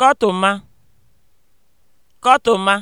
kọtụma kọtụma